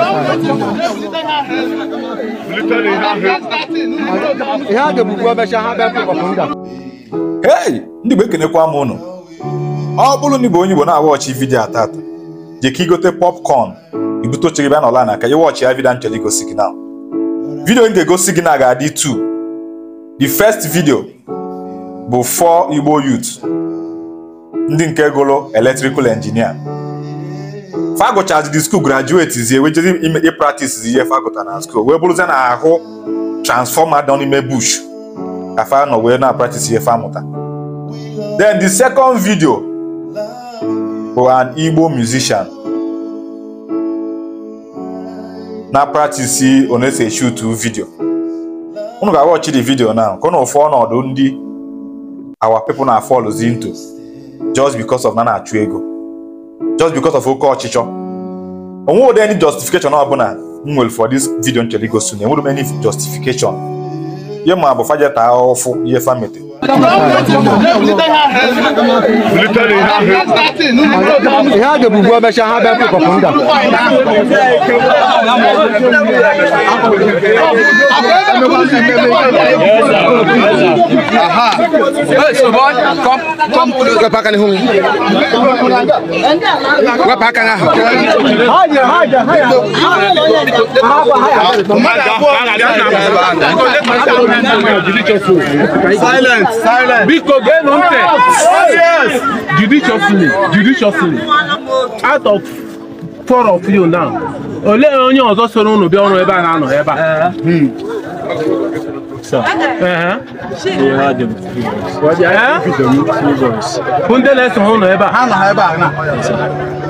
ihe ndị Igbo ekenekwa m ụnụ ọ bụrụ na Igbo onye Igbo na-awa ọchị vidiyo atata je ka igote popcorn ibute oche gị bịa n'ọla na aka ya vidiyo ga-egosi gị na ga-adị 2 the first video bụ for Igbo youth ndị nke gụrụ electrical engineer fagụchazi skuul grajuetizie wejezi ịpraktisizi ihe fagụta na skuul wee bụrụzie na ahụ transfọma dị n'ime bush ka fa nọ wee na-apraktisi ihe famụta then the second video bụ an Igbo musician na praktisi onese shutu video unu ga-awọchi the video now ka ụnụ ụfụ ọnọdụ ndị our people na-afọlụzi into just because of na na-achụ ego just because of oke ọchịchọ onwe ụdị any justification ọbụla m nwere for this video nchọrọ igosi na enwere m any justification ye ma bụ fajeta ahụhụ fụ ihe famete ihe a ga-ebubu emecha ha bịa pịkọpụ nga wepụ aka n'ihu Silence. biko geenụ Yes. judiciously judiciously out of four of you now olee onye ọzọ soro unu bịa ọrụ ebe a na-anọ ebe a ndị na-eso ha ụnọ ebe a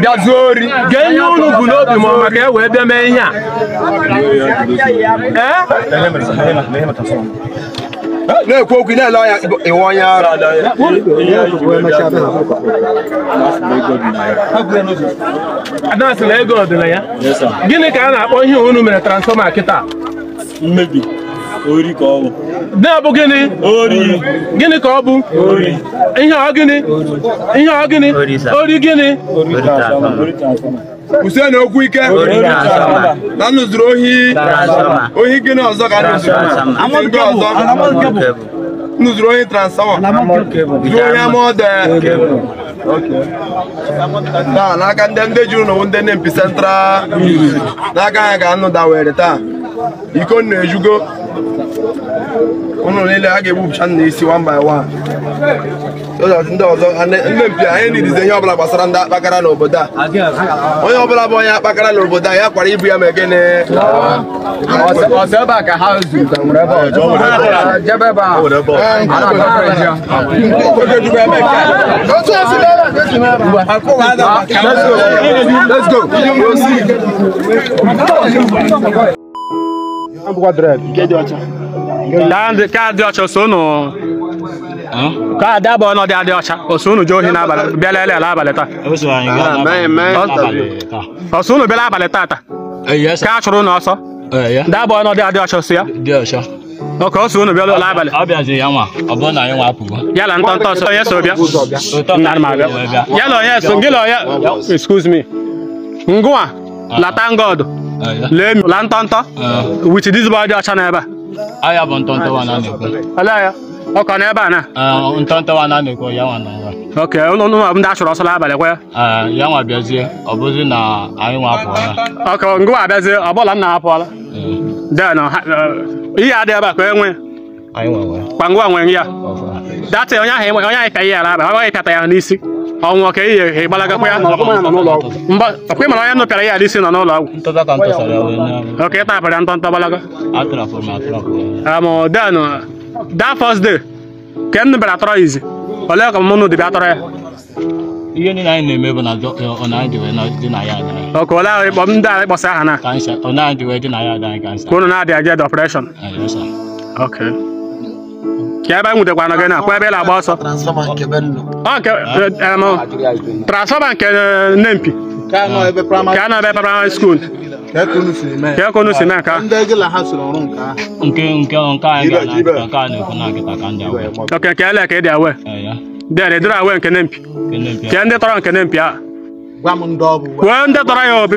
bịa zuo ori gee ihe unu bụ n'obi ma maka e wee bịa mee ihe a na-ekwu okwu na-ele ọnya iwe onye ara na ego gịnị ka a na-akpọ ihe unu mere transfọma kịta mmebi Ori ka ọ bụ. Na-abụ gịnị? Ori. Gịnị ka ọ bụ? Ori. Ihe ọ gịnị? Ihe ọ gịnị? Ori gịnị? Usen okwu ike na nụzuru ohi ohi gịnị ọzọ ka nụzuru ohi transama zuru ohi amọde taa n'aka ndị ndị juru n'owu ndị nempi central n'aka ha ka anụ dawere taa iko na-ejugo ụnụ niile a ga-egbupụcha nna isi one by one ndị ọzọ ndị mpi anyị nidizi ihe ọbụla gbasara ndị akpakara n'obodo a onye ọbụla bụ onye akpakara n'obodo a ya kwara ibu ya ma egene Let's dị ọcha unu ka abụọ adị ọcha unu jee ohi n'abalị ala abalị taa unu e ah, bịala abalị taata e, ka a chụrụ unu ọsọ e, adị ọcha ya ọka ọsọ unu bịala ụlọ abalị ntọ ntọ ọsọ onye so bịa onye so gị onye excuse me ah. lata ngọdụ ah, lee la ntọ dị ọcha n'ebe a ọ ya bụ ntọntọwa na na-ekwu ala ya ọ ka n'ebe a na ntọntọwa na na-ekwu ya nwa na ok ụlọ ụlọ ndị achọrọ ọsọla abalị kwa ya ya nwa bịazie ọ bụzi na anyị nwa apụọla ok ngwa abịazie ọ bụla m na-apụọla den e, ihe adịghị ebe a ka enwe kwa ngwa nwee ya datị onye ahụ onye ahụ pịa ihe ala aba ọ gaghị pịata ya n'isi ọnwụ ka ihe ihe ịgbalaga kwa ya ọkwa ịmara onye nụpịara ya alisi nọ n'ụlọ ọgwụ oke ịta apịara ntọ ntọ gbalaga den da fọs de ka m nụbịara atọrọ izi olee ka mụnụ dịbịa atọrọ ya ihe niile anyị na-eme bụ na eh, ọkụ ole ahụ ịkpọ ndị ahụ ịkpọsa aha na ka unu na-adị eje depression ok ka ebe anyị nwutekwana gị na kwa ebe ị na-agba ọsọ transfọma nke nempi ka nọ ebe praịmarị skuul kekunu si na nka oke ka ele ka ị dị awe dere dịrị awe nke nempi kee ndị tọrọ nke nempi a kwuo ndị tọrọ ya obi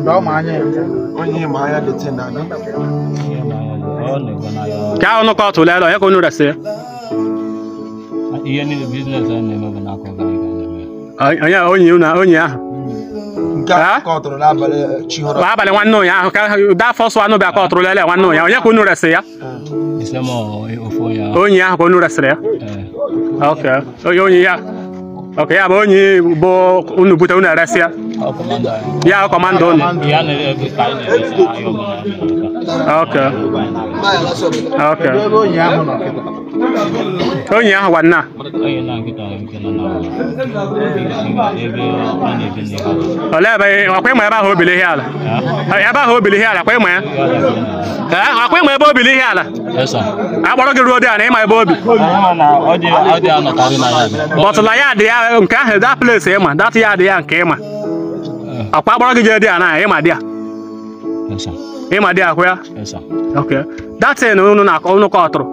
Ndio manye. Onye maya de tena na. Ka ono ko to le lo e ko nu rese. Iye ni business ane mo na ko ga ga. Anya onye una onye ah. Nke a kọtụrụ n'abalị chihọrọ. Abalị nwanne ụnya ahụ ka daa fọsụ anụ bịa kọtụrụ lele nwanne ụnya onye ka unu resị ya? Onye ahụ ka unu resịrị ya? Eh. Ok, onye ya. Ok, ya bụ onye bụ unu bute unu eresị ya? Yeah, command on. Okay. Okay. Onye ahụ gwa nna. Olee ebe akwa ịma ebe ahụ obili ihe ala? Ebe ahụ obili ihe ala akwa ịma ya? Akwa ịma ebe obili ihe ala? Akpọrọ gị ruo dị a na ịma ebe obi? Bọtụla ya dị ya nke ahụ, that place ịma, that ya dị ya nke ịma. akwa agbara gị jee dị a na ma dị a ịma dị akwụ ya datin unu na-akọ unu kọ ọtụrụ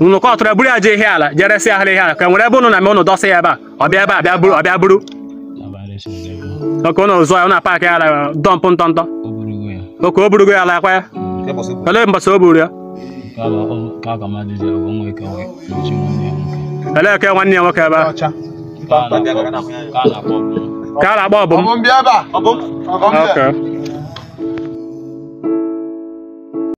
unu kọ ọtụrụ eburu ya jee ihe ala jere si ahịrị ihe ala ka e nwere ebe unu na eme unu dọsị ya ebe a ọbịa ebe a bịa buru ọbịa buru oke unu zụọ ya na paakị ala dọmpụ ntọntọ oke o burugo ya ala akwa ya olee mbọsị o buru ya elee ka nwanne ya nwoke ebe a ka a na-akpọ ọbụm